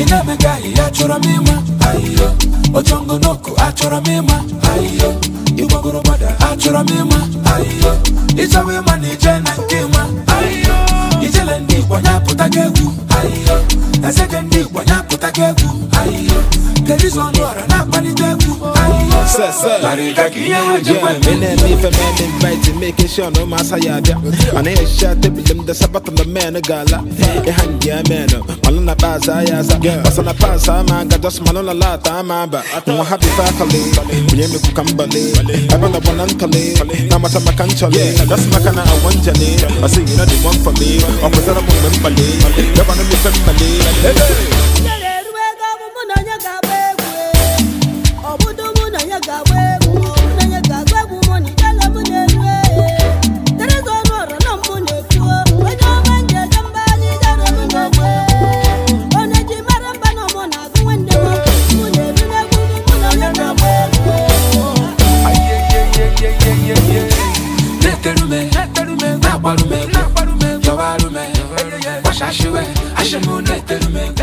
inamega achọrọ m ịma ayo Ochongo achọrọ achora ịma ayo igbogorobada achọrọ achora ịma ayo ịchọwa ịma na ije na nke ịma ayo ijele ndị igbo ya pụtaga egwu ayo eze ndị igbo ya ayo kedu izu ọra na-akpalite making sure no mass I had and I shot the them the sabat on the man a gala. A hand ya man, Malona I'm a girl, as an apasa, man, got us Malona Lata, Mamba. I don't have the faculty, William Cucambale, I'm on the one uncally, Namata Macanchale, that's Macana, I want Jenny, I see you know the one for me, or was that a woman, Bali. na gbarume na gbarume jọba rume wàṣà ṣíwẹ̀ àṣẹmú nẹ̀tẹ̀rùmẹ̀.